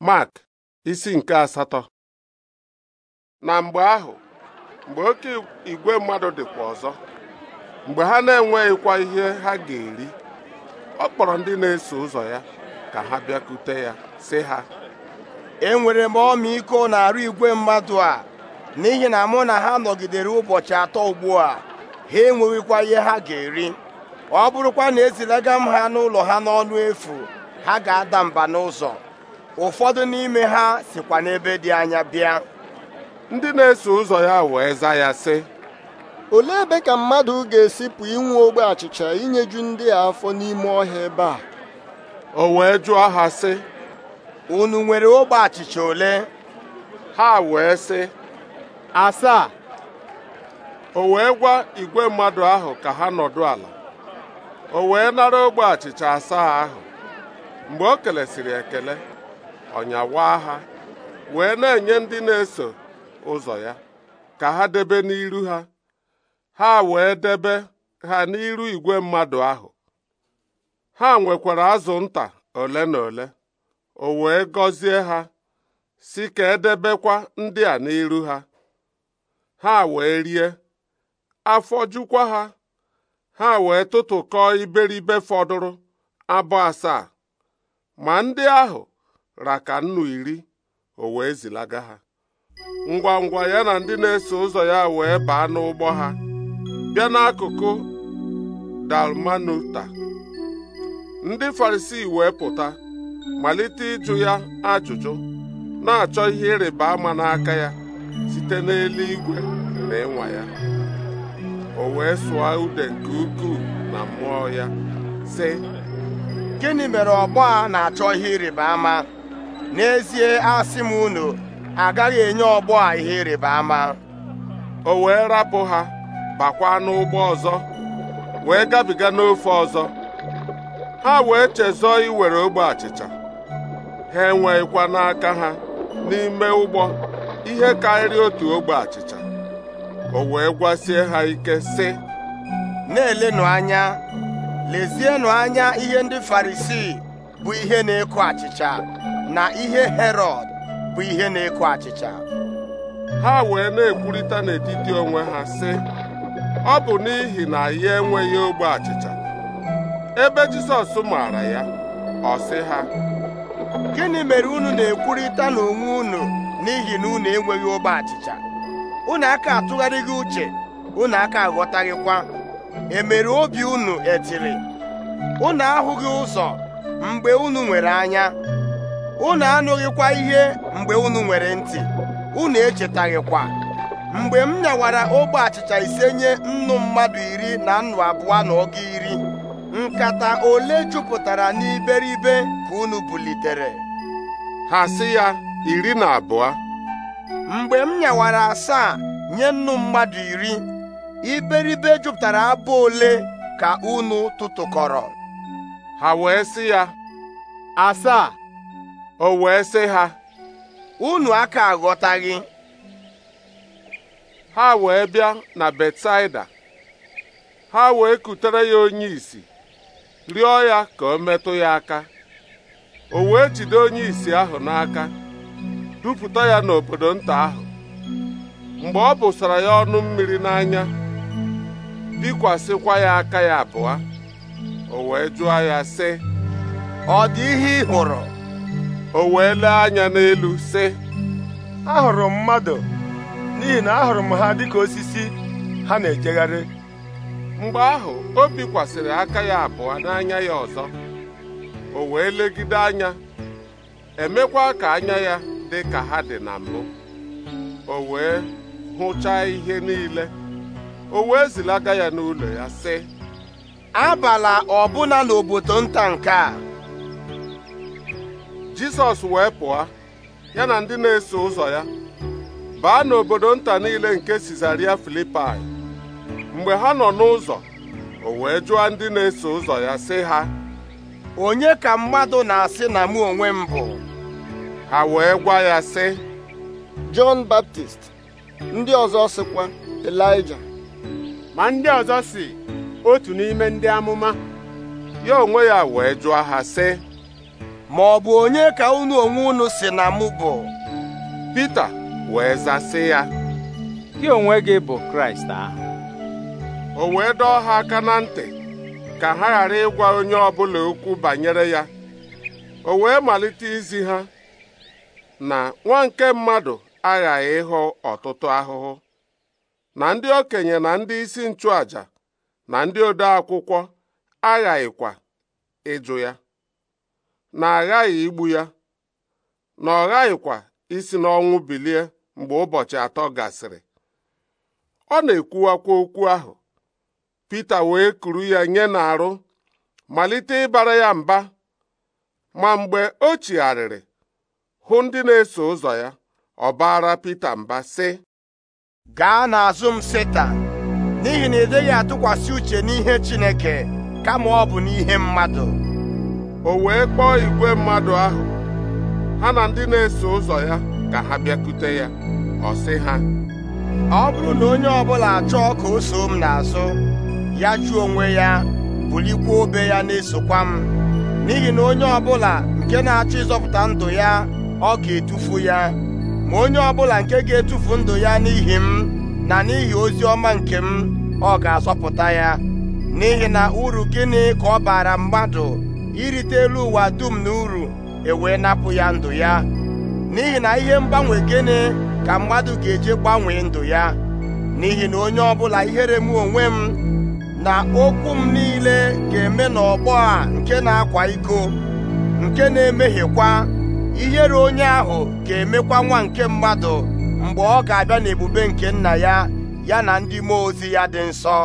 Mark isi nke asatọ na mgbe ahụ mgbe oke igwe mmadụ dịkwa ọzọ mgbe ha na-enweghịkwa ihe ha ga-eri ọ kpọrọ ndị na-eso ụzọ ya ka ha bịakute ya sị ha enwere m ọmịiko arụ igwe mmadụ a n'ihi na mụ na ha nọgidere ụbọchị atọ ugbu a ha enweghịkwa ihe ha ga-eri ọ bụrụkwa na ezilaga m ha n'ụlọ ha n'ọnụ efu ha ga-ada mba n'ụzọ ụfọdụ n'ime ha sikwa n'ebe dị anya bịa ndị na-eso ụzọ ya wee za ya sị olee ebe ka mmadụ ga-esipụ inwe ogbe achịcha inyeju ndị a afọ n'ime ọhịa ebe a o wee jụọ ha sị unu nwere ogbe achịcha ole ha wee sị asaa o wee gwa igwe mmadụ ahụ ka ha nọdụ ala o wee nara ogbe achịcha asaa ahụ mgbe o kelesịrị ekele ọnyawa ha wee na-enye ndị na-eso ụzọ ya ka ha debe n'iru ha ha wee debe ha n'iru igwe mmadụ ahụ ha nwekwara azụ nta ole na ole o wee gọzie ha si ka edebekwa ndị a n'iru ha ha wee rie afọ jukwa ha ha wee tụtụkọọ iberibe fọdụrụ abụ asaa ma ndị ahụ raka nnu iri o wee zilaga ha ngwa ngwa ya na ndị na-eso ụzọ ya wee baa n'ụgbọ ha bịa n'akụkụ dalmanuta ndị farisi wee pụta malite ịjụ ya ajụjụ na-achọ ihe ịrịba ama n'aka ya site n'eluigwe na ịnwa ya o wee sụọ ude nke ukwuu na mmụọ ya sị gịnị mere ọgbọ a na-achọ ihe ịrịba ama n'ezie asị m unu agaghị enye ọgbọ a ihe ịrịba ama o wee rapụ ha bakwa n'ụgbọ ọzọ wee gabiga n'ofe ọzọ ha wee chezọọ iwere ogbe achịcha ha enweghịkwa n'aka ha n'ime ụgbọ ihe karịrị otu ogbe achịcha o wee gwasie ha ike sị na-elenụ anya lezienụ anya ihe ndị farisii bụ ihe na eku achịcha na ihe herọd bụ ihe na-eko achịcha ha wee na-ekwurịta n'etiti onwe ha sị ọ bụ n'ihi na ya enweghị ogbe achịcha ebe Jisọs maara ya ọ sị ha gịnị mere unu na-ekwurịta n'onwe unu n'ihi na unu enweghị ogbe achịcha unu aka atụgharịghị uche unu aka aghọtaghịkwa emere obi unu etiri unu ahụghị ụzọ mgbe unu nwere anya unu anụghịkwa ihe mgbe unu nwere ntị unu echetaghịkwa mgbe m nyawara ogbe achịcha ise nye nnu mmadụ iri na nnu abụọ na ọgụ iri nkata ole jupụtara n'iberibe ka unu bulitere ha si ya iri na abụọ mgbe m nyawara asaa nye nnu mmadụ iri iberibe jupụtara abụ ole ka unu tụtụkọrọ ha wee si ya asaa o wee sị ha unu aka aghọtaghị ha wee bịa na Betsaida ha wee kutere ya onye isi rịọ ya ka o metụ ya aka o wee jide onye isi ahụ n'aka dupụta ya n'obodo nta ahụ mgbe ọ bụsara ya ọnụ mmiri n'anya bikwasịkwa ya aka ya abụọ o wee jụọ ya sị ọ dị ihe ị hụrụ o wee lee anya n'elu sị ahụrụ m mmadụ n'ihi na ahụrụ m ha dịka osisi ha na-ejegharị mgbe ahụ o bikwasịrị aka ya abụọ n'anya ya ọzọ o wee legide anya emekwa ka anya ya dị ka ha dị na mbụ o wee hụchaa ihe niile o wee zilaga ya n'ụlọ ya sị abala ọbụna n'obodo nta nke a jisọs wee pụọ ya na ndị na-eso ụzọ ya baa n'obodo nta niile nke sizaria filipai mgbe ha nọ n'ụzọ o wee jụọ ndị na-eso ụzọ ya sị ha onye ka mmadụ na-asị na mụ onwe m bụ ha wee gwa ya sị Jọn Baptist ndị ọzọ sịkwa Elija ma ndị ọzọ si otu n'ime ndị amụma ya onwe ya wee jụọ ha sị ma ọ bụ onye ka unu onwe unu si na mụ bụ Pita wee zasị ya gị onwe gị bụ Kraịst ahụ o wee dọọ ha aka na ntị ka ha ghara ịgwa onye ọbụla okwu banyere ya o wee malite izi ha na nwa nke mmadụ aghaghị ịhụ ọtụtụ ahụhụ na ndị okenye na ndị isi nchụàjà na ndị ode akwụkwọ aghaghịkwa ịjụ ya na aghaghị igbu ya na ọ ghaghịkwa isi n'ọnwụ bilie mgbe ụbọchị atọ gasịrị ọ na-ekwuwakwa okwu ahụ Pita wee kuru ya nye n'arụ malite ịbara ya mba ma mgbe o chigharịrị hụ ndị na-eso ụzọ ya ọbara baara Pita mba sị gaa n'azụ m Setan n'ihi na ị dịghị atụkwasị uche n'ihe Chineke kama ọ bụ n'ihe mmadụ o wee kpọọ igwe mmadụ ahụ ha na ndị na-eso ụzọ ya ka ha bịakute ya ọ sị ha ọ bụrụ na onye ọbụla achọọ ka o soo m n'azụ ya jụọ onwe ya bulikwa obe ya na-esokwa m n'ihi na onye ọbụla nke na-achọ ịzọpụta ndụ ya ọ ga-etufu ya ma onye ọbụla nke ga-etufu ndụ ya n'ihi m na n'ihi ozi ọma nke m ọ ga-azọpụta ya n'ihi na uru gịnị ka ọ bara mmadụ irite elu ụwa dum na uru ewee napụ ya ndụ ya n'ihi na ihe mgbanwe gịnị ka mmadụ ga-eje gbanwee ndụ ya n'ihi na onye ọbụla ihere m onwe m na okwu m niile ga-eme n'ọgbọ a nke na-akwa iko nke na-emehiekwa ihere onye ahụ ga-emekwa nwa nke mmadụ mgbe ọ ga-abịa n'ebube nke nna ya ya na ndị mmụọ ozi ya dị nsọ